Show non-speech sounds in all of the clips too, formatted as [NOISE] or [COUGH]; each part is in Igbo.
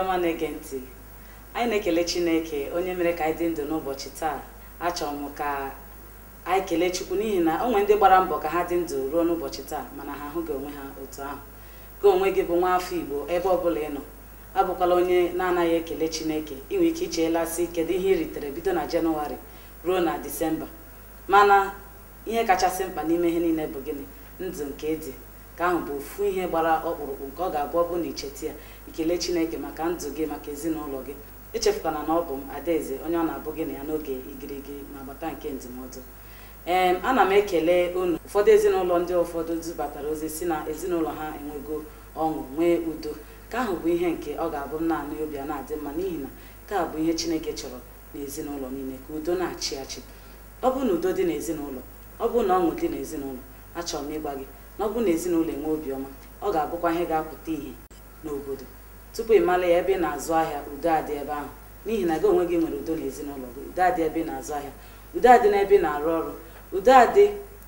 ọma na-ege ntị anyị na-ekele chineke onye mere ka anyị dị ndụ n'ụbọchị taa achọrọ m ka anyị kelee chukwu n'ihi na onwe ndị gbara mbọ ka ha dị ndụ ruo n'ụbọchị taa mana ha ahụghị onwe ha otu ahụ ka onwe gị bụ nwa afọ igbo ebe ọbụla ị nọ abụkwala onye na-anaghị ekele chineke inwe ike si kedu ihe ị ritere bido na jenụwarị ruo na disemba mana ihe kachasị mkpa n'ime ihe niile bụ gịnị ndụ nke dị nke ahụ bụ ofu ihe gbara ọkpụrụkpụ nke ọ ga-abụ ọ bụ na icheta ya ikele chineke maka ndụ gị maka ezinụlọ gị echefukwana na ọ bụ m adaeze onye ọ na-abụ gị na ya n'oge igirigi ma gbata nke ndụmọdụ ee ana m ekele unu ụfọdụ ezinụlọ ndị ụfọdụ dubatara ozi si na ezinụlọ ha enwego ọṅụ nwee udo nke ahụ bụ ihe nke ọ ga-abụ m naanị obi a na-adị mma n'ihi na nke a bụ ihe chineke chọrọ na ezinụlọ niile ka udo na-achị achị ọ bụ na udo dị n'ezinụlọ ọ bụ na ọṅụ dị n'ezinụlọ achọrọ m ịgba gị na ọ na ezinụlọ enwe obiọma ọ ga-abụkwa ihe ga-apụta ihe n'obodo tupu ị mara ya ebe ị na-azụ ahịa udo adị ebe ahụ n'ihi na gị onwe gị nwere udo n'ezinụlọ gị udo adị ebe na-azụ ahịa udo adị n'ebe ị na-arụ ọrụ udo adị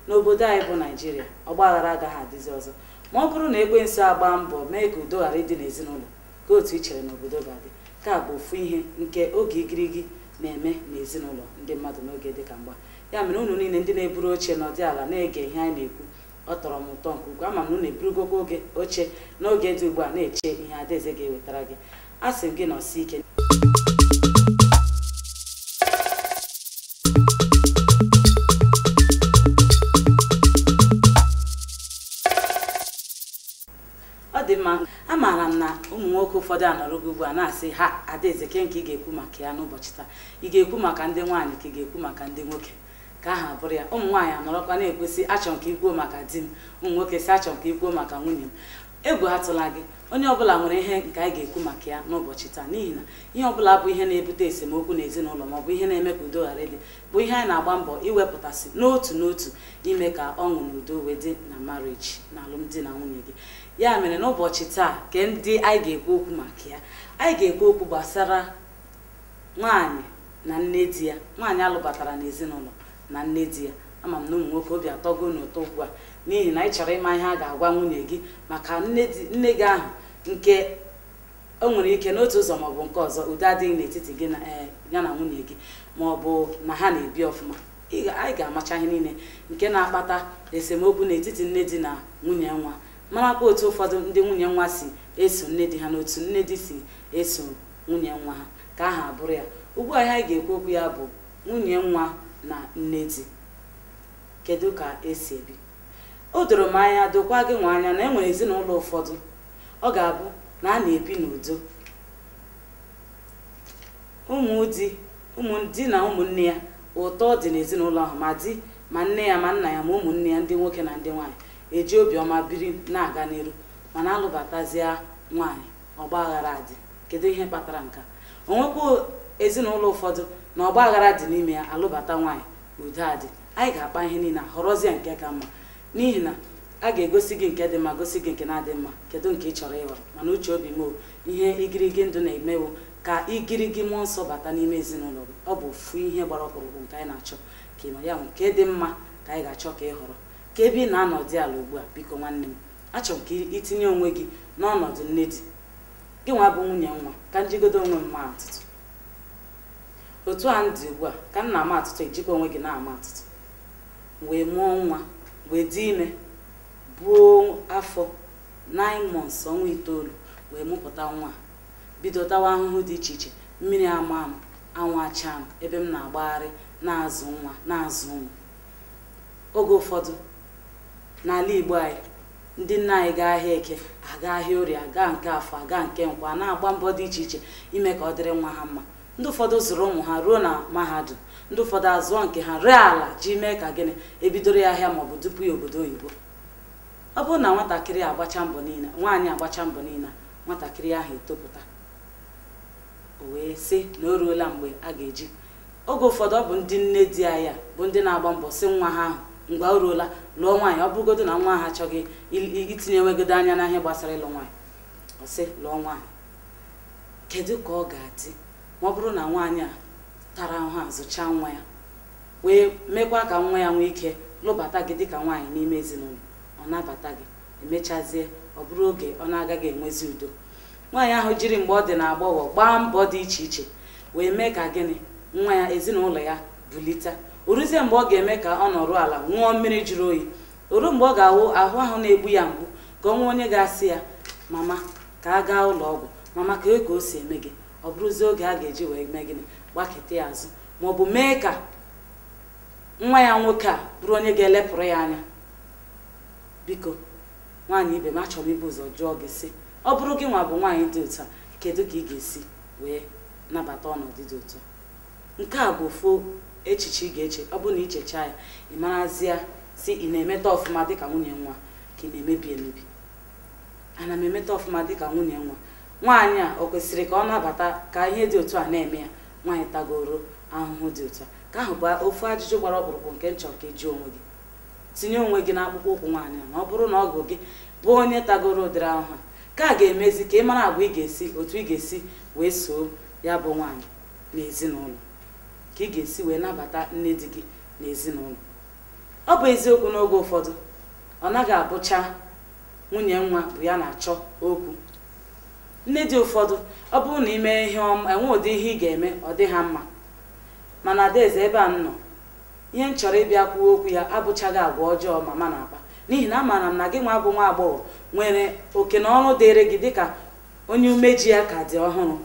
n'obodo anyị bụ naijiria ọgbaghara agaghị adịzi ọzọ ma ọ bụrụ na ekwensu agba mbọ mee ka udo ghara ịdị n'ezinụlọ ka otu i chere na obodo ga-adị ka bụ ofu ihe nke oge igirigi na-eme n'ezinụlọ ndị mmadụ n'oge dị ka mgba ya mere unu niile ndị na-eburu oche nọdụ ala na-ege ihe anyị na-ekwu ọ tọrọ m ụtọ nke ukwuu ama m na eburugogo oge oche n'oge dị ugbu a na-eche ihe adaeze ga-ewetara gị a sị gị nọsi ike ọ dị mma amaara m na ụmụ nwoke ụfọdụ a anọrọgo ugbu a na-asị ha adaeze ke nke ị ga-ekwu maka ya n'ụbọchị taa ị ga-ekwu maka ndị nwaanyị ka ị ga-ekwu maka ndị nwoke ka aha bụrụ ya ụmụ nwaanyị anọrọkwa na-ekwesị achọ nke ikwuo maka di m ụmụ nwoke si achọ nke ikwuo maka nwunye m egwu atụla gị onye ọbụla nwere ihe nke anyị ga-ekwu maka ya n'ụbọchị taa n'ihi na ihe ọbụla bụ ihe na-ebute esemokwu n'ezinụlọ ma ihe na-eme ka udo ghara dị bụ ihe anyị na-agba mbọ iwepụtasị n'otu n'otu ime ka ọṅụ na udo wee dị na mariji na alụmdi na nwunye gị ya mere n'ụbọchị taa ke ndị anyị ga-ekwu okwu maka ya anyị ga-ekwu okwu gbasara nwaanyị na nne di ya nwaanyị alụbatara n'ezinụlọ na nne di ya ama m na ụmụ nwoke obi atọgo n'ụtọ ugbu a n'ihi na ị chọrọ ịma ihe a ga-agwa nwunye gị maka nne gị ahụ nke o nwere ike n'otu ụzọ ma bụ nke ọzọ ụdị adịghị n'etiti gị e, ya na nwunye gị ma ọ bụ na ha na-ebi ọfụma anyị ga-amacha ihe niile nke na-akpata esemokwu n'etiti nne di na nwunye nwa marakwa otu ụfọdụ ndị nwunye nwa si eso nne di ha na otu nne di si eso nwunye nwa ha ka aha bụrụ ya ugbu a ihe anyị ga-ekwu okwu ya bụ nwunye nwa na nne di kedu ka esi ebi o doro m anya dokwa gị nwa anya na enwere ezinụlọ ụfọdụ ọ ga-abụ na a na-ebi n'udo ụmụdi ụmụdi na ụmụnne ya ụtọ dị n'ezinụlọ ahụ ma di ma nne ya ma nna ya ma ụmụnne ya ndị nwoke na ndị nwaanyị eji obiọma biri na-aga n'iru mana alụbatazie nwaanyị ọgba aghara adị kedu ihe kpatara nka onwekwa ezinụlọ ụfọdụ na ọgba aghara dị n'ime ya alụbata nwaanyị udo adị anyị ga-akpa ihe niile họrọzie nke ka mma n'ihi na a ga-egosi gị nke dị mma gosi gị nke na-adị mma kedu nke ị chọrọ ịghọrọ mana uche obi m ihe igirigi ndụ na-emewo ka igirigi mmụọ nsọ bata n'ime ezinụlọ gị ọ bụ ofu ihe gbara ọkpụrụkpụ nke anyị na-achọ ka ịnọ ya nke dị mma ka anyị ga-achọ ka ị họrọ ka ebe ị na-anọ dị ala ugbu a biko nwanne m achọrọ m ka itinye onwe gị n'ọnọdụ nne di gị nwa bụ nwunye nwa ka njigodo onwe mma atụtụ otu a ndị ugbu a ka m ama atụtụ ejikwa onwe gị na-ama atụtụ wee mụọ nwa wee dị ime buo afọ 9 months ọnwa itoolu wee mụpụta nwa bidotawa ahụhụ dị iche iche mmiri ama ama anwụ acha m ebe m na-agbagharị na-azụ nwa na-azụ ụmụ oge ụfọdụ n'ala Igbo anyị ndị nna anyị gaa ahịa eke aga ahịa orie aga nke afọ aga nke nkwa na-agba mbọ dị iche iche ime ka ọ dịrị nwa ha mma ndị ụfọdụ zụrụ ụmụ ha ruo na mahadum ndị ụfọdụ azụọ nke ha ree ala ji mee ka gịnị ebidoro ya ahịa maọbụ dupu ya obodo oyibo ọ bụrụ na nwatakịrị agbacha mbọ niile nwaanyị agbacha mbọ niile nwatakịrị ahụ etopụta o wee sị na o ruola mgbe a ga-eji oge ụfọdụ ọ bụ ndị nne di ya ya bụ ndị na-agba mbọ si nwa ha ahụ mgbe o ruola lụọ nwaanyị ọ bụrụgodo na nwa ha achọghị itinye enwegodo anya n'ahịa gbasara ịlụ nwaanyị ọ sị lụọ nwaanyị kedu ka ọ ga-adị ọ bụrụ na nwaanyị a tara ahụ a zụchaa nwa ya wee mekwa ka nwa ya nwee ike lụbata gị dịka nwaanyị n'ime ezinụlọ ọ nabata gị emechazie ọ bụrụ oge ọ na-agaghị enwezi udo nwaanyị ahụ jiri mgbe ọ dị na agbọghọ gbaa mbọ dị iche iche wee mee ka gịnị nwa ya ezinụlọ ya bulite oruzie mgbe ọ ga-eme ka ọ nọrọ ala ṅụọ mmiri jụrụ oyi oru mgbe ọ ga-awụ ahụ ahụ na-egbu ya mgbu ka ọ nwee onye ga-asị ya mama ka a gaa ụlọ ọgwụ mama ka e ka o si eme gị ọ bụrụzie oge a ga-eji wee mee gịnị gbaketa ya azụ maọbụ mee ka nwa ya nwoke a bụrụ onye ga-elepụrụ ya anya biko nwaanyị ibe m achọrọ m ibu ụzọ jụọ gị si ọ bụrụ gị nwa bụ nwaanyị dị ụtọ kedu ka ị ga-esi wee nabata ọnọdụ dị ụtọ nke a bụ ofu echiche ị ga-eche ọ bụrụ na ichecha ya ị marazịa si ị na-emeta ọfụma dịka nwunye nwa ka ị na-emebi emebi ana m emeta ọfụma dịka nwunye nwa nwaanyị a o kwesịrị ka ọ nabata ka ihe dị otu a na-eme ya nwaanyị tagoro ahụhụ dị otu a ka ahụ bụ ofu ajụjụ gbara ọkpụrụkpụ nke nchọ ka ị onwe gị tinye onwe gị akpụkpọ ụkwụ nwaanyị a ma ọ bụrụ na ọgụ gị bụ onye tagoro ụdịrị ahụhụ ka a ga-emezi ka ị mara agwa ị ga-esi otu ị ga-esi wee soo ya bụ nwaanyị n'ezinụlọ ka ị ga-esi wee nabata nne di gị n'ezinụlọ ọ bụ eziokwu n'oge ụfọdụ ọ naghị abụcha nwunye nwa bụ ya na-achọ okwu nne dị ụfọdụ ọ bụrụ na imee ihe ọma enwe ụdị ihe ị ga-eme ọ dị ha mma mana adaeze ebe a m nọ ihe m chọrọ ịbịa kwuo okwu ya abụchaghị agwa ọjọọ mama na-akpa n'ihi na amaara m na gị nwa bụ nwa agbọghọ nwere oke na ọrụ dịrị gị dịka onye umeji ya ka dị ọhụrụ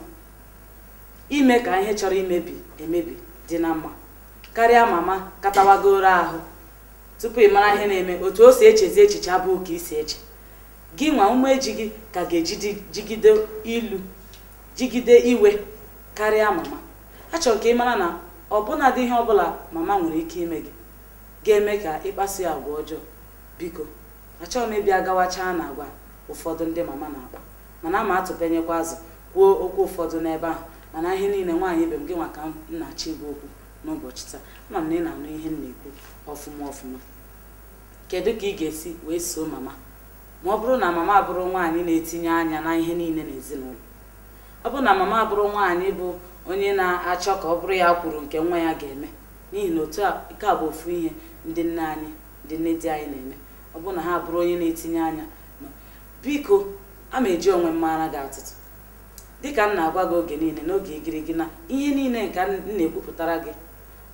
ime ka ihe chọrọ imebi emebi dị na mma karịa mama katawagoro ahụ tupu ị mara ihe na-eme otu o si echezi echiche abụghị ka isi eche gị nwa umeji gị ka ga jigide ilu jigide iwe karịa mama achọrọ ka ị mara na ọbụna dị ihe ọbụla mama nwere ike ime gị ga-eme ka ịkpasu ya agwa ọjọọ biko achọghị m ịbịa gawachaa na agwa ụfọdụ ndị mama na-akpa mana ma atụpenyekwa azụ kwuo okwu ụfọdụ n'ebe ahụ mana ihe niile nwaanyị ibe m gị nwa ka m na-achọ igwe okwu n'ụbọchị taa ama m na ị na-anụ ihe m na-ekwu ọfụma ọfụma kedu ka ị ga-esi wee soo mama ma ọ bụrụ na mama abụrụ nwaanyị na-etinye anya na ihe niile n'ezinụlọ ọ bụrụ na mama abụrụ nwaanyị bụ onye na-achọ ka ọ bụrụ ya kwuru nke nwa ya ga-eme n'ihi na otu ike a bụ ofu ihe ndị nne anyị ndị nne di anyị na-eme ọ bụrụ na ha abụrụ onye na-etinye anya biko a ma eji onwe mmara gị atụtụ dịka m na-agwa gị oge niile n'oge igirigi na ihe niile nke m na-ekwupụtara gị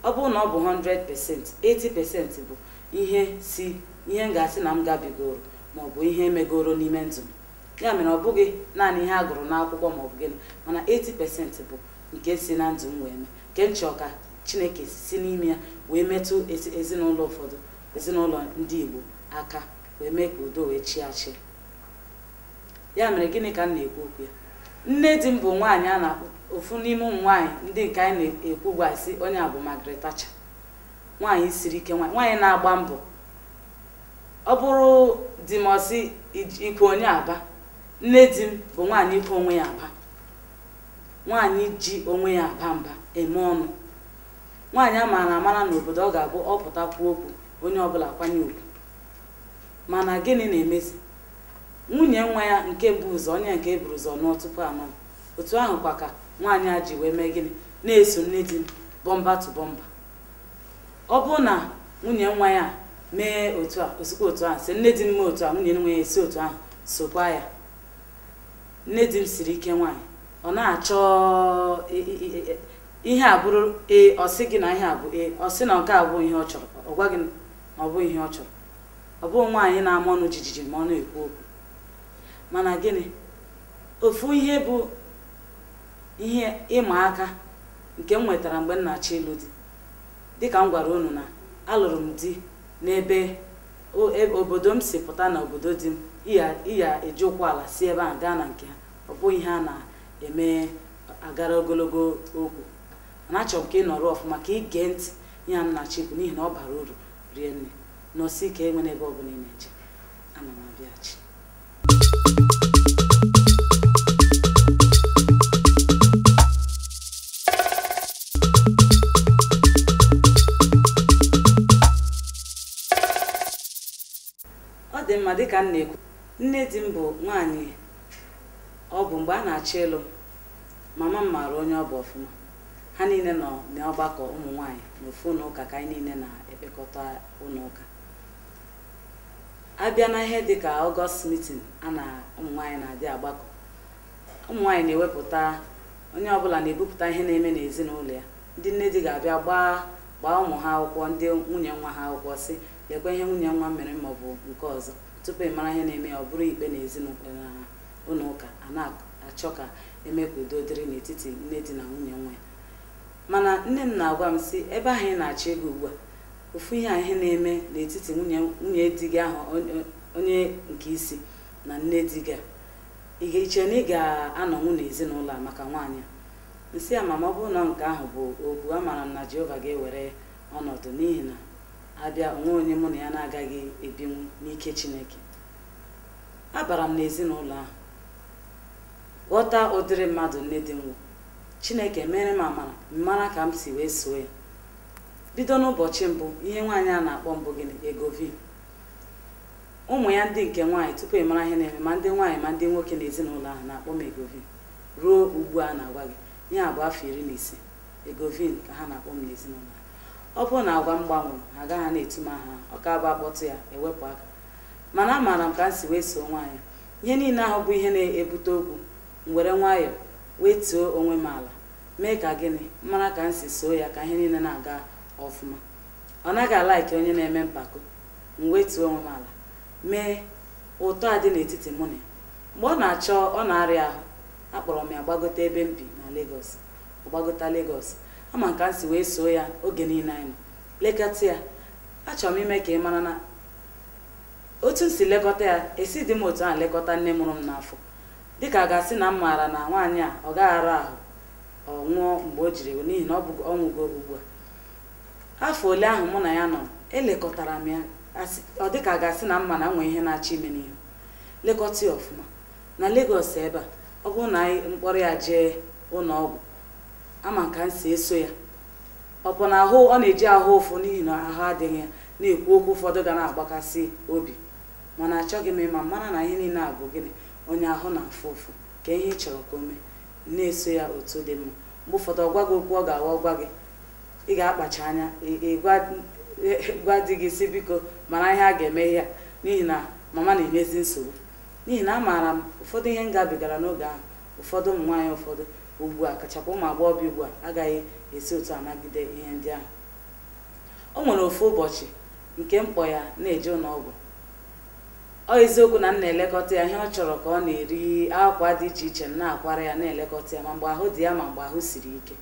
ọ bụrụ na ọ bụ 100 pasent 80 pasent bụ ihe si ihe m ga-asị na m gabigoro maọbụ ihe megoro n'ime ndụ ya mere ọ bụghị naanị ihe a gụrụ n'akwụkwọ maọbụ gịnị mana 80% bụ nke si na ndụ m wee mee nke nchọ ka chineke si n'ime ya wee metụ ezinụlọ ụfọdụ ezinụlọ ndị igbo aka wee mee ka udo wee chịa achị ya mere gịnị ka m na-ekwu okwu ya nne di m bụ nwaanyị a na ofu n'ime ụmụ nwaanyị ndị nke anyị na-ekwu gwa si onye a bụ Margaret nwaanyị siri ike nwaanyị nwaanyị na-agba mbọ ọ bụrụ di m ọsị ikwe onye aba nne di m bụ nwaanyị ikwu onwe ya aba nwaanyị ji onwe ya aba mba eme ọnụ nwaanyị a maara amara n'obodo ọ ga-abụ ọ pụtakwu okwu onye ọbụla kwanye ugwu mana gịnị na-emezi nwunye nwa ya nke mbụ ụzọ onye nke eburu ụzọ nụọ tupu anọ otu ahụ ka nwaanyị a ji wee mee gịnị na-eso nne di m bọmba tụ bọmba ọ bụ na nwunye nwa ya mee otu a osikwa otu ahụ si nne di m mee otu a nwunye nwe ya esi otu ahụ sokwa ya nne di m siri ike nwaanyị ọ na-achọ e, e, e, ihe a bụrụ ee ọ sị gị na ihe a bụ ee ọ sị na nke a bụ ihe ọ chọrọ ọ gwa gị na ọ bụ ihe ọ chọrọ ọ bụghị nwaanyị na-ama ọnụ jijiji ma ọ na-ekwu okwu mana gịnị ofu ihe bụ ihe ịma aka nke m nwetara mgbe m na-achọ ịlụ di dịka m gwara unu na alụrụ m di n'ebe e, obodo m si pụta n'obodo obodo dị m iya eji ụkwụ ala si ebe a gaa na nke ha ọ bụghị a na-eme agara ogologo okwu mana achọrọ m ka ị nọrọ ọfụma ka ị gee ntị ya m na n'ihi na ọ bara uru rie nne nọsi ike enwe n'ebe ọ bụla ị na-eje ana m mma dịka m na-ekwu nne di m bụ nwaanyị ọ bụ mgbe a na-achọ ịlụ mama m maara onye ọ bụ ọfụma ha niile nọ n'ọgbakọ ụmụ nwaanyị n'ofu ụlọ ụka ka anyị niile na-ekpekọta ụlọ ụka abịa na ihe dịka ọgọst mitin a na ụmụ na-adị agbakọ ụmụ na-ewepụta onye ọbụla na-ebupụta ihe na-eme n'ezinụlọ ya ndị nne di ga-abịa gbaa gbaa ụmụ ha akwụkwọ ndị nwunye nwa ha akwụkwọ si lekwa ihe nwunye nwa mere maọbụ nke ọzọ tupu ị mara ihe na-eme ọ bụrụ ikpe na ezinụlọ na ụlọ ụka a na-achọ ka eme ka udo dịrị n'etiti nne di na nwunye nwa ya mana nne m na-agwa m si ebe ahụ ị na-achọ ego ugbu a ofu ihe a ihe na-eme n'etiti nwunye di gị ahụ onye nke isi na nne di gị a ị ga-eche na ị ga anọnwu n'ezinụlọ a maka nwaanyị nsị a mama ọ bụrụ na nke ahụ bụ okwu amara m na Jehova ga-ewere ọnọdụ n'ihi na abịa nwa onye mụ na ya na-agaghị ebinwu n'ike chineke abara m n'ezinụlọ ahụ ghọta ụdịrị mmadụ nne dị nwa chineke mere m amara mara ka m si wee soo ya bido n'ụbọchị mbụ ihe nwaanyị a na-akpọ mbụ gịnị egovin ụmụ ya ndị nke nwaanyị tupu ị mara ihe na-eme ma ndị nwaanyị ma ndị nwoke na ezinụlọ ahụ na-akpọ m egovin ruo ugbu a na-agwa gị ihe a bụ afọ iri na ise egovin ka ha na-akpọ m n'ezinụlọ ọ bụrụ na agwa m gbanwere ha agaghị na etu ha ọ ka bụ akpọtụ ya ewepụ aka mana amaara m ka m si wee soo nwaanyị ihe niile ahụ bụ ihe na-ebute okwu m were nwayọọ wee tuo onwe m ala mee ka gịnị mara ka m si soo ya ka ihe niile na-aga ọfụma ọ naghị alaiki onye na-eme mpako m wee tuo onwe m ala mee ụtọ a dị n'etiti mụ na ya mgbe ọ na-achọ ọ na-arịa ahụ akpọrọ m ya gbagote ebe m bi na Lagos ọ gbagota Lagos ama nke si wee soo ya oge niile anyị lekọta ya achọrọ m ime ka ị mara na otu m si lekọta ya esi dị m otu a lekọta nne mụrụ m n'afọ dịka a ga-asị na m maara na nwaanyị a ọ gaghị arụ ahụ ọ nwụọ mgbe o jiri n'ihi na ọ bụ ọnwụgo ugbu a afọ ole ahụ mụ na ya nọ elekọtara m ya ọ dị ka a ga-asị na mma na nwee ihe na-achọ ime n'ihu lekọta ya ọfụma na legos ebe a ọ bụrụ na anyị mkpọrọ ya jee ụlọ ọgwụ ama ka m si eso ya ọ bụ na ahụ ọ na-eji ahụ ụfụ n'ihi na ahụ adịghị ya na-ekwu okwu ụfọdụ ga na-agbakasị obi mana achọghị m ịma mara na ihe niile a bụ gịnị onye ahụ na-afụ ụfụ ka ihe ị chọrọ ka o mee na-eso ya otu dị mma mgbe ụfọdụ ọ gwa gị okwu ọ ga-awa gwa gị ị ga-akpacha anya gwa di gị si biko mara ihe a ga-eme ya n'ihi na mama na emezi nsogbu n'ihi na amaara m ụfọdụ ihe m gabigara n'oge ahụ ụfọdụ ụmụ nwaanyị ụfọdụ ugbu a kachakwa ụmụ bi ugbu a agaghị esi otu anagide ihe ndị ahụ o nwere ofu ụbọchị nke mkpọ ya na-eje n'ọgwụ ọ eziokwu na m na-elekọta ya ihe ọ chọrọ ka ọ na-eri akwa dị iche iche m na-akwara ya na-elekọta ya ma mgbe ahụ dị ya ma mgbe ahụ siri ike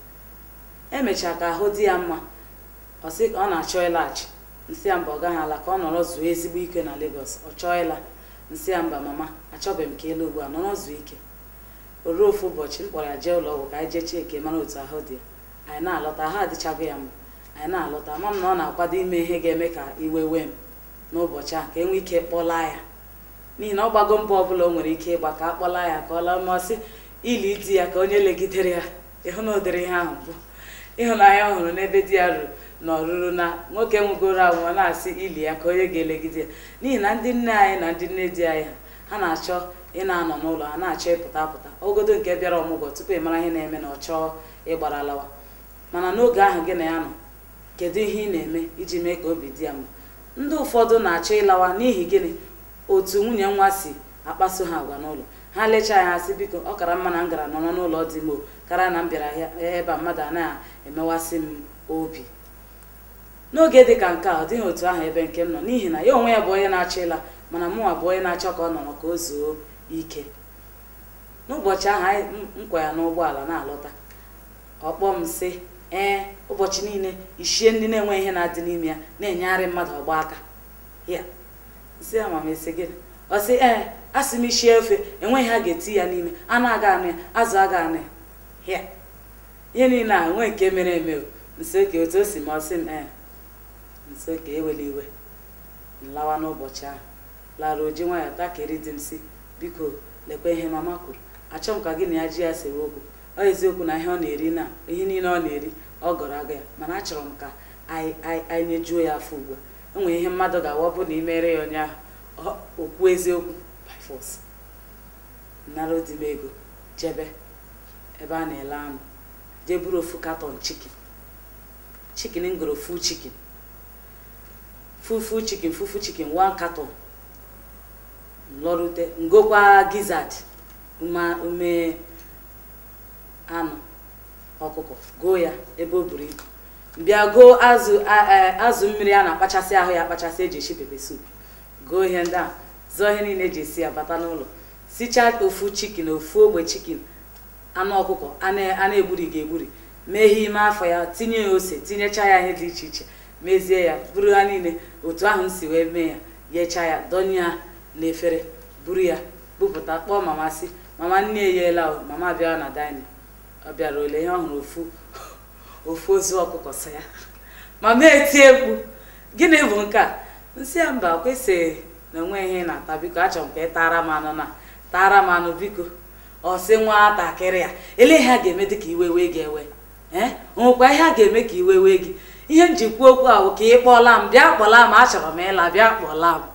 emechaa ka ahụ dị ya mma ọ ka ọ na-achọ ịlaghachi nsị ya mba ọ gaghị ala ka ọ nọrọ zuo ezigbo ike na Lagos ọ chọọ ịla nsị ya mba mama achọbeghị m ka ịla ugbu a nọrọ zuo ike o ruo ofu ụbọchị m kpọrọ jee ụlọ ọgwụ ka anyị jee chekie mara otu ahụ dị ya anyị na-alọta ha adịchago ya mma anyị na-alọta ma m na ọ na-akwado ime ihe ga-eme ka iwe wee m n'ụbọchị a ka enwe ike kpọla ya n'ihi na ọ gbago mbọ ọ bụla o nwere ike ịgba ka a kpọlaa ya ka ọ laa mmasị ili di ya ka onye legidere ya ịhụ na ụdịrị ihe ahụ bụ ịhụnanya ọ hụrụ n'ebe di ya ruru na ọrụrụ na nwoke nwegoro anwụ ọ na-asị ili ya ka onye ga-elegide ya n'ihi na ndị nne anyị na ndị nne di anyị ha na-achọ ị na-anọ n'ụlọ a na-achọ ịpụta apụta ogodo nke bịara ọmụgwọ tupu ị mara ihe na-eme na ọ chọọ ịgbara alawa mana n'oge ahụ gị na ya nọ kedu ihe ị na-eme iji mee ka obi dị ya mma ndị ụfọdụ na-achọ ịlawa n'ihi gịnị otu nwunye nwa si akpaso ha agwa n'ụlọ ha lechaa ya asị biko ọ kara mma na m gara nọrọ n'ụlọ dị m karịa na m bịara ebe a mmadụ a na-emewasị m obi n'oge dị ka nke a ọ dịghị otu ahụ ebe nke m nọ n'ihi na ya onwe ya bụ onye na-achọ ịla mana mụnwa bụ onye na-achọ ka ọ nọrọ ka o zuo ike n'ụbọchị ahụ anyị nkwa ya n'ụgbọala na-alọta ọkpọ m sị ee ụbọchị niile ichie ndị na-enwe ihe na-adị n'ime ya na-enyegharị mmadụ ọgba aka ya si amamesi gịnị ọ sị ee a sị m ichie ofe enweghị ha ga-eti ya n'ime anụ aga anụ ya azụ aga anụ ya ya ihe niile a enwe nke mere eme nsoke otu o si ma ọ sị m ee nsoke ewele iwe m lawa n'ụbọchị ahụ lara oji nwa ya takịrị di m si biko lekwa ihe mama kwuru achọ m ka gị na ya ji ya sewe okwu ọ eziokwu na ihe ọ na-eri na ihe niile ọ na-eri ọ gọrọ aga ya mana achọrọ m ka anyị nyejuo ya afọ ugbu a enwere ihe mmadụ ga-awa bụ na imere ya onye ahụ okwu eziokwu by force nara m ego jebe ebe a na-ele anụ jee buru ofu katọn chikin chikin ngoro fu chikin fufu chikin fufu chikin one katọn lọrute ngokwa gizzard ume anụ ọkụkọ goo ya ebe o buru ibu bịa goo azụ azụ mmiri a na-akpachasị ahụ ya akpachasị eji esi pepe sup goo ihe ndị a zụọ ihe niile eji esi ya bata n'ụlọ sichaa ofu chikin ofu ogbe chikin anụ ọkụkọ a na ga egburi ihe ime afọ ya tinye ya ose tinyechaa ya ihe dị iche iche mezie ya bụrụ ha niile otu ahụ m si wee mee ya yechaa ya dọnye ya na efere buru ya bupụta kpọọ mama sị mama nne eyela mama abịa na daịnị ọ bịara ole ihe ọ hụrụ ofu [LAUGHS] ofu ozu ọkụkọ sị ya [LAUGHS] mama eti egwu gịnị bụ nke a nsị ya mba kwesịghị na onwe ihe na-ata biko achọrọ m ka ị tara m anụ na tara m anụ biko ọ sị nwatakịrị ya ele ihe a ga-eme dị ka iwe wee gị ewe ee eh? ihe a ga-eme ka iwe wee gị ihe njikwa okwu ahụ ka ị kpọọla m bịa kpọla m achọrọ m ịla bịa kpọla m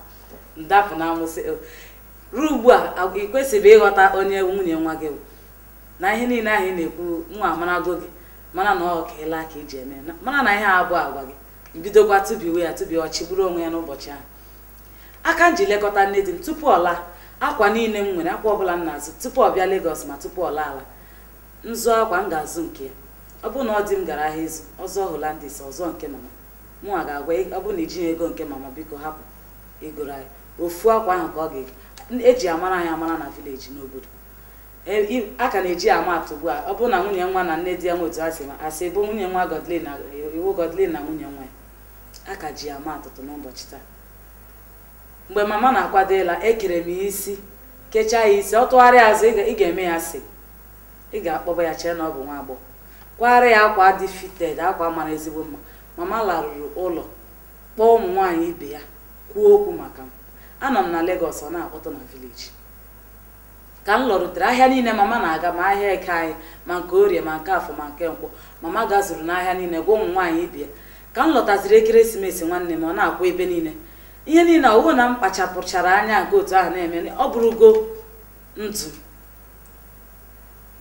dapụ na amụsị eh, ruo ugbu a ị kwesịrị ịghọta onye nwunye nwa gị na ihe niile ahụ na-ekwu nwa amarago gị mana na ọ ka ịla ka iji e eme mana na ihe abụọ agwa gị bidokwa tụbiwe ya tụbi ọchị bụrụ onwe ya n'ụbọchị ahụ aka m ji lekọta nne di m tupu ọla laa akwa niile m nwere akwa ọbụla m na-azụ tupu ọ bịa Lagos ma tupu ọla ala m zụọ akwa m ga-azụ nke ya ọ bụrụ na ọ dị m gara ahịa ịzụ ọzọ Holandis ọzọ nke mama mụnwa ga-agwa ọ bụrụ na ijighị ego nke mama biko hapụ igoro anyị ofu akwa ahụ ka ọ ga-eji eji amara anyị amara na vileji n'obodo e, a ka na-eji ama atụ ugbu a ọ bụrụ na nwunye nwa na nne di ya nwe otu asị asị bụ nwunye nwa Godlin na iwu Godlin na nwunye nwa ya a ka ji ama atụtụ n'ụbọchị taa mgbe mama na-akwado ịla ekere m ya isi kechaa ya isi ọ tụgharịa azụ ị ga-eme ya sị ị ga-akpọba ya chee na ọ bụ nwa agbọghọ kwara ya akwa dị fited akwa mara ezigbo mma mama larụrụ ụlọ kpọọ ụmụ nwaanyị ibe ya kwuo okwu maka m anọ m na Lagos ọ na-akpọtụ na vileji ka m rutere ahịa niile mama na-aga ma ahịa eke anyị ma nke orie ma nke afọ ma nke nkwọ mama gazuru n'ahịa niile gwa ụmụ nwaanyị ibia ka m lọtaziri ekeresimesi nwanne m ọ na akwụ ebe niile ihe niile ọwụ na m kpachapụchara anya nke otu ahụ na-eme ọ bụrụgo ntu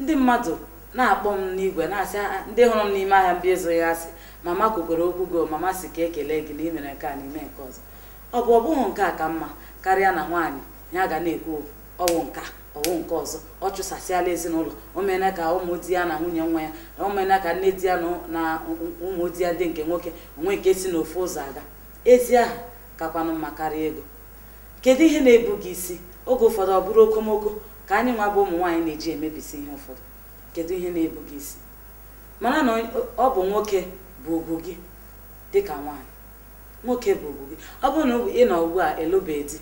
ndị mmadụ na-akpọ m n'igwe na-asị ah, ndị hụrụ m n'ime ahịa mbi ezoghị asị mama kwukwere okwu go oh, mama si ka ekele gị na imere nke a n'ime nke ọzọ ọ bụ ọ bụghị nke a ka mma karịa na nwaanyị ya ga na-ekwu ọwụ nka ọwụ nke ọzọ ọ chụsasịala ezinụlọ omena ka ụmụ di ya na nwunye nwa ya omena ka nne di ya na ụmụ di ya dị nke nwoke onwe nke si n'ofe ụzọ aga ezi aha kakwanụ mma karịa ego kedu ihe na-ebu gị isi oge ụfọdụ ọ bụrụ okomoko ka anyị nwa bụ ụmụ nwaanyị na-eji emebisi ihe ụfọdụ kedu ihe na-ebu gị isi mana na ọ bụ nwoke bụ ugwu gị ka nwaanyị nwoke bụ ugwu gị ọ bụrụ na ị nọ ugbu a elụbeghị di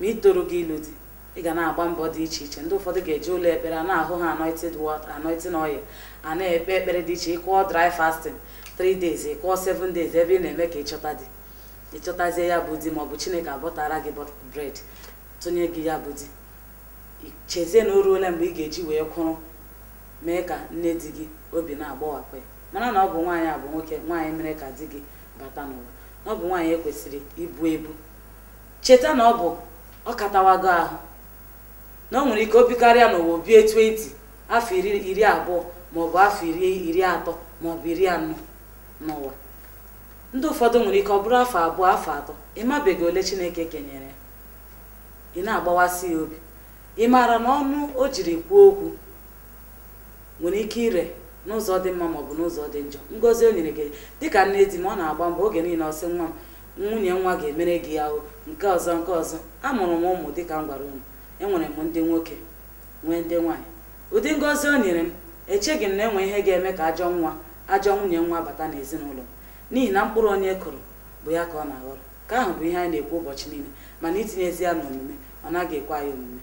ma ị gị ilu di ị ga na-agba mbọ dị iche iche ndị ụfọdụ ga-eji ụlọ ekpere a na-ahụ ha anointed water anointing oil a na-ekpe ekpere dị iche ịkụọ dry fasting 3 days ịkụọ 7 days ebe ị na-eme ka ịchọta ị ịchọtazie ya bụ di ma ọ bụ chineke abọtara gị bred tụnye gị ya bụ di chezie na oruole ruola mgbe ị ga-eji wee kwụrụ mee ka nne di gị obi na-agbawapụ ya mana na ọ bụ nwaanyị a bụ nwoke nwaanyị mere ka di gị bata n'ụwa na ọ bụ nwaanyị ekwesịrị ibu ebu cheta na ọ bụ ọ katawago ahụ na ọ nwere ike obi karịa n'ụwa o bie 20 afọ iri abụọ maọbụ afọ iri iri atọ maọbụ iri anọ n'ụwa ndị ụfọdụ nwere ike ọ bụrụ afọ abụọ afọ atọ ịmabeghị ole Chineke kenyere ya ị na-agbawasị ya obi ị maara na ọnụ o jiri kwuo okwu nwere ike ire n'ụzọ dị mma maọbụ n'ụzọ dị njọ Ngozi o nyere gị dịka nne di m ọ na-agba mbọ oge niile ọsị nwa m nwunye nwa ga-emere gị ahụ nke ọzọ nke ọzọ amụrụ m ụmụ dịka m gwara unu enwere m ndị nwoke nwee ndị nwaanyị ụdị ngozi o nyere m echeghị m na enwe ihe ga-eme ka ajọ nwa ajọ nwunye nwa bata n'ezinụlọ n'ihi na mkpụrụ onye e kụrụ bụ ya ka ọ na-aghọrọ ka ahụ bụ ihe anyị na-ekwu ụbọchị niile mana itinyezi ya n'omume ọ naghị ekwe anyị omume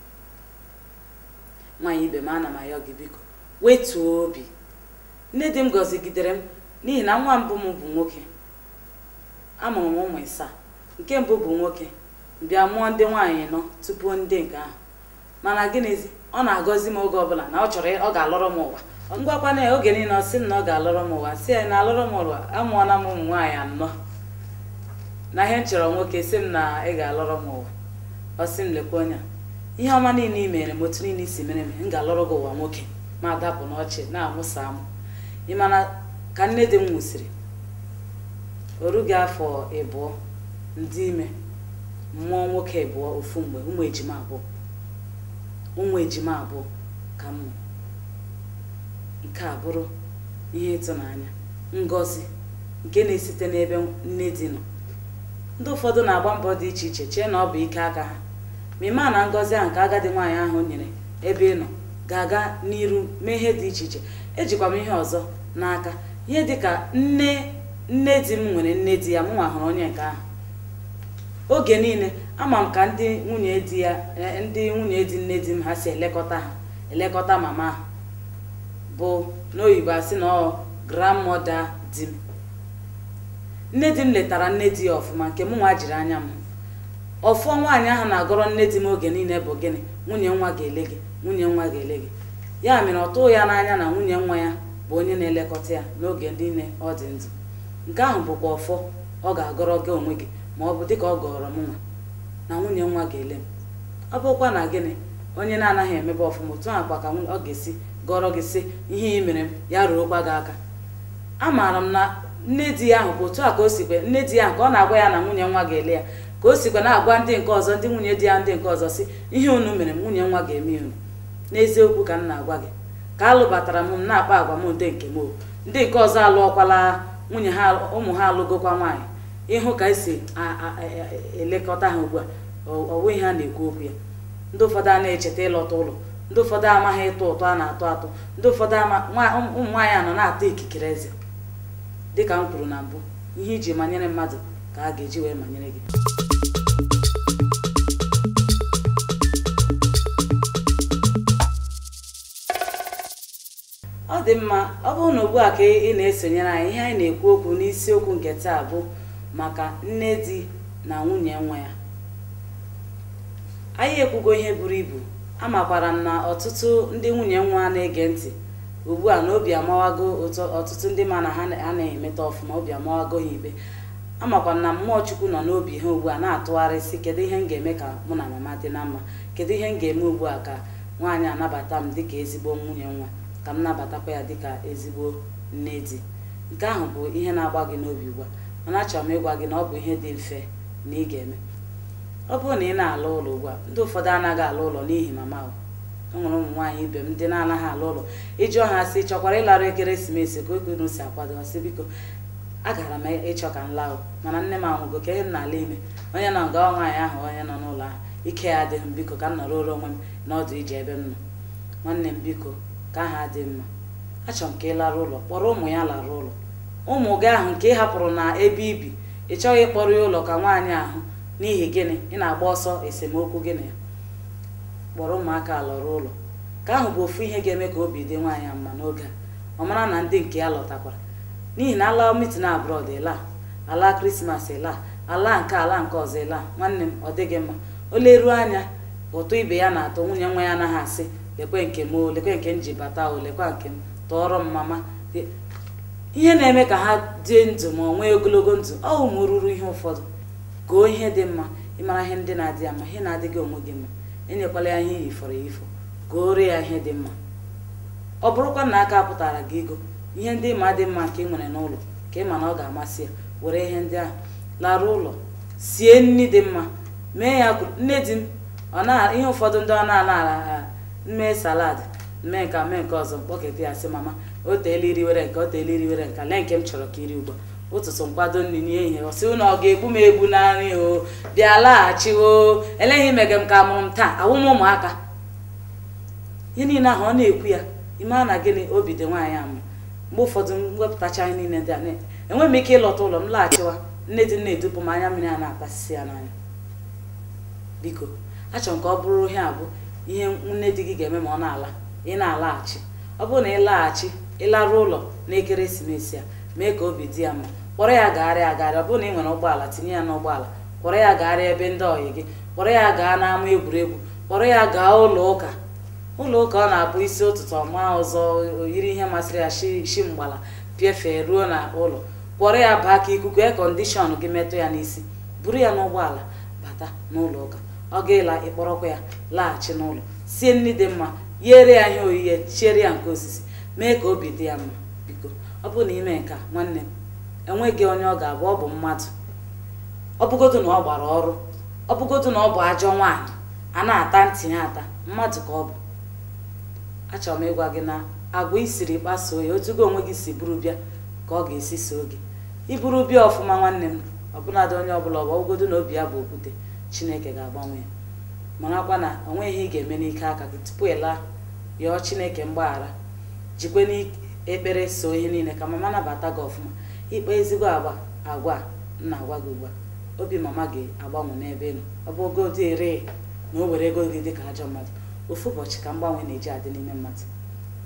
nwaanyị ibe m ana m ayọ gị biko wetuo obi nne di m gọzigidere m n'ihi na nwa mbụ m bụ nwoke amụrụ m ụmụ ịsaa nke mbụ bụ nwoke bịa mụọ ndị nwaanyị nọ tupu ndị nke ahụ mana gịnịzi ọ na-agọzi m oge ọbụla na ọ chọrọ ọ ga-alọrọ m ụwa ngwakwa na oge niile ọ sị m na ọ ga-alọrọ m ụwa si ya na alọrọ m ụwa amụọla m ụmụ nwaanyị anọ na ihe m chọrọ nwoke si m na ị ga-alọrọ m ụwa ọ sị m lekwa onye ihe ọma niile ị mere m otu niile isi mere m m ga-alọrọ gị ụwa nwoke ma dapụ n'ọchị na-amụsa amụ ị ka nne di m nwụsịrị orughi afọ ịbụọ ndị ime mmụọ nwoke ịbụọ ofu mgbe ụmụ ejima abụọ ụmụ ejima abụọ ka m nke a bụrụ ihe ịtụnanya ngọzi nke na-esite n'ebe nne di nọ ndị ụfọdụ na-agba mbọ dị iche iche chee na ọ bụ ike aka ha ma na ngozi ahụ nke agadi nwaanyị ahụ nyere ebe ị nọ ga-aga n'iru mee ihe dị iche iche ejikwa m ihe ọzọ n'aka ihe dịka nne nne di m nwere nne di ya m nwa hụrụ onye nke ahụ oge niile ama m ka ndị nwunye di ya e, ndị nwunye di nne di m ha si elekọta ha elekọta mama ha bụ n'oyibo asị na ọ grandmọda di m nne di m letara nne di ya ọfụma nke mụ nwa jiri anya m ọfụọ nwaanyị ahụ na-agọrọ nne di m oge niile bụ gịnị nwunye nwa ga-ele gị nwunye nwa ga-ele gị ya mere ọtụ ya n'anya na nwunye nwa ya bụ onye na-elekọta ya n'oge niile ọ dị ndụ nke ahụ bụkwa ọfọ ọ ga-agọrọ gị onwe gị ma ọ bụ dịka ọ gọrọ m nwa na nwunye nwa ga-ele m ọ bụkwa na gịnị onye na-anaghị emebe ọfụma otu akwa ka ọ ga-esi gọrọ gị sị ihe ị mere m ya ruokwa gị aka amaara m na nne di ya ahụ bụ otu a ka o sikwe nne di ya ahụ ka ọ na-agwa ya na nwunye nwa ga-ele ya ka o sikwe na-agwa ndị nke ọzọ ndị nwunye di ya ndị nke ọzọ si ihe unu mere m nwunye nwa ga-eme unu n'eziokwu ka m na-agwa gị ka alụbatara m na-akpa agwa m ndị nke m ndị nke ọzọ alụọkwala nwunye ha ụmụ ha alụgokwa nwaanyị ịhụ ka esi e, elekọta ha ugbu a ọwụ ha na-ekwu okwu ya ndị ụfọdụ a na-echeta ịlọta ụlọ ndị ụfọdụ amaghị ịtụ ụtọ a na-atụ atụ ndị ụfọdụ ụmụ nwaanyị a nọ na atọ ikikere eze dịka m kwuru na mbụ ihe iji manyere mmadụ ka a ga-eji wee manyere gị ọ dị mma ọ bụrụ na ugbu a ka ị na-esonyere anyị ihe anyị na-ekwu okwu n'isiokwu nke taa bụ maka nne di na nwunye nwa ya anyị ekwugo ihe buru ibu amakwara m na ọtụtụ ndị nwunye nwa na-ege ntị ugbu a na obi amawago ọtụtụ ndị ma na ha na emeta ọfụma obi amawago ha ibe amakwa na mmụọ chukwu nọ n'obi ha ugbu a na-atụgharịsị kedu ihe m ga-eme ka mụ na mama dị na mma kedu ihe m ga-eme ugbu a ka nwaanyị anabata m dịka ezigbo nwunye nwa ka m nabatakwa ya dịka ezigbo nne di nke ahụ bụ ihe na-agba gị n'obi ugbu a mana achọrọ m ịgwa gị na ọ bụ ihe dị mfe na ị ga-eme ọ bụrụ na ị na-alụ ụlọ ugbu a ndị ụfọdụ anaghị alụ ụlọ n'ihi mama ahụ e nwụrụ ụmụ nwaanyị ibe m ndị na-anaghị alụ ụlọ iji ọha si chọkwara ịlarụ ekeresimesi ka oge unu si akwado sị biko agara m ịchọ ka m laụ mana nne m anwụgo ka ihe m na-ala ime onye nọ nga nwaanyị ahụ onye nọ n'ụlọ ahụ ike ya adịghị m biko ka m nọrọ onwe m n'ọdụ ije ebe m nọ nwanne m biko ka ha dị mma achọrọ m ka ị lara ụlọ kpọrọ ụmụ ya lara ụlọ ụmụ gị ahụ nke ị hapụrụ na ebe ibi ị chọghị ịkpọrọ ya ụlọ ka nwaanyị ahụ n'ihi gịnị ị na-agba ọsọ esemokwu gị na ya kpọrọ ụmụaka lọrọ ụlọ ka ahụ bụ ofu ihe ga-eme ka obi dị nwaanyị mma n'oge a ọ mara na ndị nke ya lọtakwara n'ihi na ala mitin abroad ịla ala krismas ịla ala nke ala nke ọzọ ịla nwanne m ọ dịghị mma o leruo anya ụtụ ibe ya na-atọ nwunye nwa ya anaghị asị lekwe nke m lekwe nke m ji bata o lekwa nke m tọọrọ m mama ihe na-eme ka ha dị ndụ ma ọ nwee ogologo ndụ ọ ụmụ ruru ihe ụfọdụ goo ihe dị mma ịmara ihe ndị na-adị ama ihe na-adịghị onwe gị mma enyekwala ya ihe yifọrọ ifo gụọrọ ya ihe dị mma ọ bụrụkwa na aka pụtara gị ego ihe ndị ma dị mma nke ị nwere n'ụlọ ka ị ma na ọ ga-amasị ya were ihe ndị ahụ larụ ụlọ sie nni dị mma mee ya nne di m ihe ụfọdụ ndị ọ na-ala ala mee salad mee nke mee nke ọzọ mkpọketa ya sị mama o teela were nke o teela were nke lee nke m chọrọ ka iri ugbu a ụtụtụ nkwado nri n'ehihie ọ sị ụnụ ọ ga-egbu m egbu na nri o bịa o eleghị imege m ka mụrụ m taa awụ m ụmụaka ihe niile ahụ ọ na-ekwu ya ime na gịnị obi dị nwaanyị amụ mgbe ụfọdụ wepụtacha anyị niile dị anya enweghị m ike ịlọta ụlọ m laghachiwa nne dị na-edupụ m anya mmiri a na-akpasisi ya n'anya biko achọrọ m ka ọ bụrụ ihe abụ ihe nne di gị ga-eme ma ọ na-ala ị na-alaghachi ọ bụrụ na ị laghachi ịlarụ ụlọ n'ekeresimesi a mee ka obi dị ya mma kpọrọ ya gagharịa agagharị ọ bụrụ na ị nwere ụgbọala tinye ya n'ụgbọala kpọrọ ya gagharịa ebe ndị ọyị gị kpọrọ ya gaa n'ama egwuregwu kpọrọ ya gaa ụlọ ụka ụlọ ụka ọ na-abụ isi ụtụtụ ọma ọzọ oyiri ihe masịrị ya shi mgbala pịafee ruo na ụlọ kpọrọ ya baa ka ikuku kọndishọn gị metụ ya n'isi buru ya n'ụgbọala bata n'ụlọ ụka ọ ga-ela ịkpọrọkwa ya laghachi n'ụlọ sie nri dị mma yere ya ihe oyiye chiere ya nke osisi mee ka obi dị ya mma biko ọ bụrụ na ime nke nwanne m enweghị onye ọ ga-abụ ọ bụ mmadụ ọ na ọ gbara ọrụ ọ na ọ bụ ajọ nwaanyị a na-ata ntị ya ata mmadụ ka ọ bụ achọrọ m ịgwa gị na agwa isiri kpasuo ya otugo onwe gị si buru bịa ka ọ ga-esi so gị iburu bịa ọfụma nwanne m ọbụladị onye ọbụla ọ bụ ọbụgodu na obi ya bụ okwute chineke ga-agbanwe ya marakwa na o nweghị ihe ị ga-eme n'ike aka gị tupu ị laa yọọ chineke mgbaghara jikwe n'ekpere so ihe niile ka mama nabata gị ọfụma ikpe ezigbo agwa agwa nna agwa gị ugbu a obi mama gị agbanwe n'ebe ị ọ bụ ogo dị ere na o were ego gị dị ka ajọ mmadụ ofu ụbọchị ka mgbanwe na-eji adị n'ime mmadụ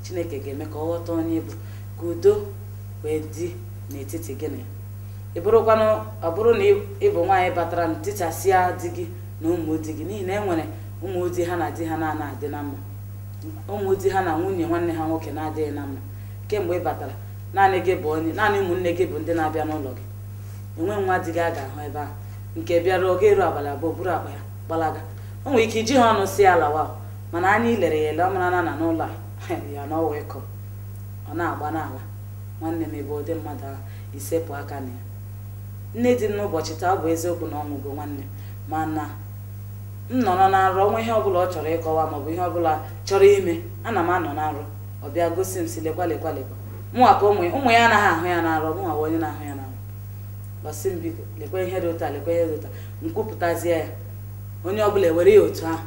chineke ga-eme ka ọ ghọta onye bụ ka udo wee dị n'etiti gị na ya ị bụrụkwanụ ọ bụrụ na ị bụ nwaanyị batara na tichasịa di gị na ụmụdi gị n'ihi na e nwere ụmụdi ha na di ha na-ana adị na mma ụmụdi ha na nwunye nwanne ha nwoke na-adịghị na mma kemgbe ị batara naanị gị bụ onye naanị ụmụnne gị bụ ndị na-abịa n'ụlọ gị enwe nwa di gị a ga-ahụ ebe ahụ nke bịara oge eru abalị abụọ buru akpa ya gbalaga o nwere ike iji ha ọnụ si ala wa mana anya lere ya ele ọ na n'ụlọ [LAUGHS] ya n'ọwa ịkọ ọ na-agba n'ala nwanne m ebe ụdị mmadụ ahụ isepụ aka na ya nne dị m n'ụbọchị taa bụ eziokwu na ọ nwụgo nwanne mana m nọrọ na nrọ nwa ihe ọbụla ọ chọrọ ịkọwa maọbụ ihe ọbụla chọrọ ime ana m anọ na nrọ ọ bịa gosi m si lekwa lekwa ka ụmụ ụmụ ya anaghị ahụ ya na nrọ mụnwa bụ onye na-ahụ ya na nrọ gbasi m biko lekwa ihe dị ụta lekwa ihe dị ụta nkwupụtazie ya onye ọbụla ewere ya otu ahụ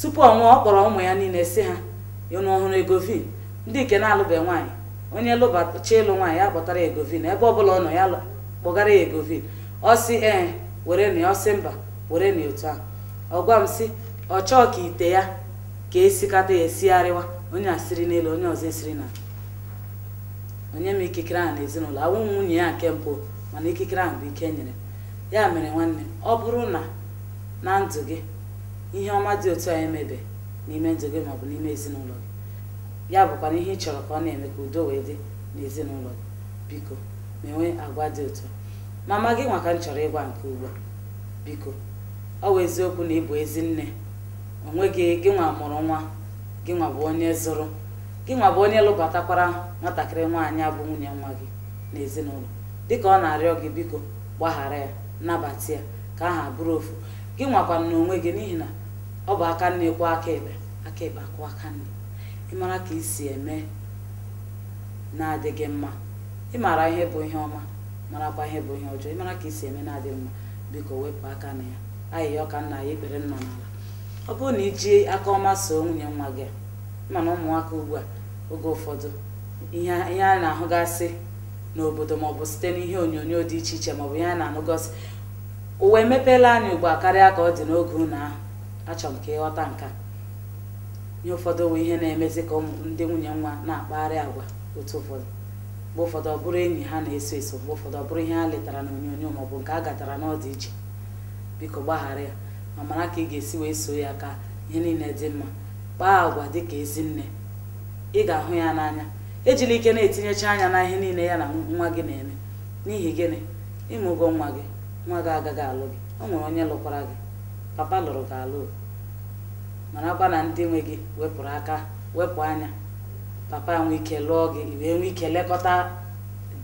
tupu ọ nwụọ ọ kpọrọ ụmụ ya niile si ha unu ọhụrụ egovin ndị nke na-alụbeghị nwaanyị onye lụbachi ịlụ nwaanyị ya kpọtara egovin ebe ọbụla ọ nọ ya lụ kpọgara ya egovi ọ sị ee were na ọ mba were na otu ahụ ọ gwa m sị ọ chọọ ka ite ya ka esikata ya esigharịwa onye asịrị n'elu onye ọzọ esiri na onye m ikikere ahụ n'ezinụlọ awụ nwunye ya nke mbụ mana ikikere ahụ bụ ike e nyere ya mere nwanne ọ bụrụ na na ndụ gị ihe ọma dị otu a emebe n'ime ndụ gị maọbụ n'ime ezinụlọ gị ya bụkwa ihe ị chọrọ ka ọ na-eme ka udo wee dị n'ezinụlọ gị biko na-enwe agwa dị otu mama gị nwaka m chọrọ ịgwa nke ugbu a biko ọ bụ eziokwu na ịbụ ezi nne onwe gị gị nwa mụrụ nwa gị nwa bụ onye zụrụ gị nwa bụ onye lụbatakwara nwatakịrị nwaanyị abụ nwunye nwa gị n'ezinụlọ dịka ọ na-arịọ gị biko gbaghara ya nnabata ya ka aha bụrụ ofu gị na n'onwe gị n'ihi na ọ bụ aka nne kwuo aka ekpe aka ekpe akwụ aka nne ịmara ka isi eme na-adịghị mma ịmara ihe bụ ihe ọma marakwa ihe bụ ihe ọjọọ ịmara ka si eme na-adị mma biko wepụ aka na ya ayịya ọka nna ya ekpere nna n'ala ọ bụrụ na iji aka ọma soo nwunye nwa gị mana ụmụaka ugbu a oge ụfọdụ ihe a na-ahụgasị n'obodo maọbụ site n'ihe onyonyo dị iche iche maọbụ ihe a na anụgosi ụwa emepeela anyị ugbu a karịa ka ọ dị n'oge unu ahụ achọrọ m ka ịghọta nka ihe ụfọdụ bụ ihe na-emezi ka ndị nwunye nwa na-akpagharị agwa otu ụfọdụ mgbe ụfọdụ ọ bụrụ enyi ha na-eso eso mgbe ụfọdụ ọ bụrụ ihe ha letara na onyonyo ma nke a gatara n'ọdị iche biko gbaghara ya ma mara ka ị ga-esi wee so ya ka ihe niile dị mma kpaa agwa dịka ezi nne ị ga-ahụ ya n'anya ejila ike na-etinyecha anya na ihe niile ya na nwa gị na-eme n'ihi gịnị ịmụgo nwa gị nwa gị agaghị alụ gị ọ nwere onye lụkwara gị papa lụrụ gị alụ marakwa na ndị nwe gị wepụrụ aka wepụ anya papa nwee ike lụọ gị wee nwee ike lekọta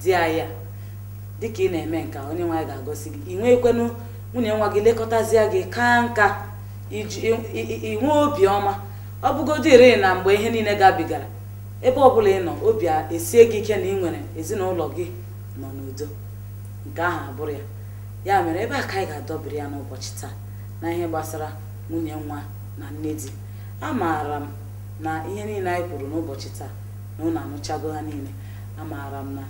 di ya dịka ị na-eme nka onye nwaanyị ga-agosi gị ị nweekwenu nwunye nwa gị lekọtazie gị ka nka inwe obiọma ọ bụgodị ire na mgbe ihe niile gabigara ebe ọbụla ị nọ obi esie gị ike na ị nwere ezinụlọ gị nọ n'udo nke ahụ abụrụ ya ya mere ebe a ka anyị ga-adọbiri ya n'ụbọchị taa na ihe gbasara nwunye nwa na nne di amaara m na ihe niile anyị kwuru n'ụbọchị taa na ụlọ anụchago ha niile amaara m na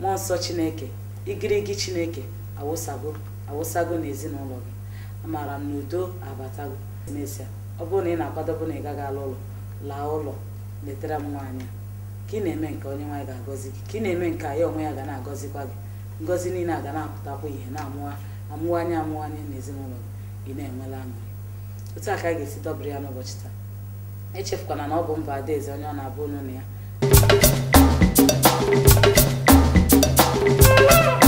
mmụọ nsọ chineke igirigi chineke awụsago awụsago ezinụlọ gị amaara m na udo abatago n'ezie ọ bụrụ na ị na-akwadobe na ị gaghị ala ụlọ laa ụlọ letara m nwaanyị ka ị na-eme nke onye nwaanyị ga-agọzi gị ka ị na-eme nke ya onwe ya ga na-agọzikwa gị ngọzi niile a ga na-apụtakwa ihe na-amụwanye amụwanye ezinụlọ gị ị na-enwela aṅụrị otu a ka a ga-esi dọbiri ya n'ụbọchị taa echefukwana na ọ bụ mba adaeze onye ọ na-abụ onye na ya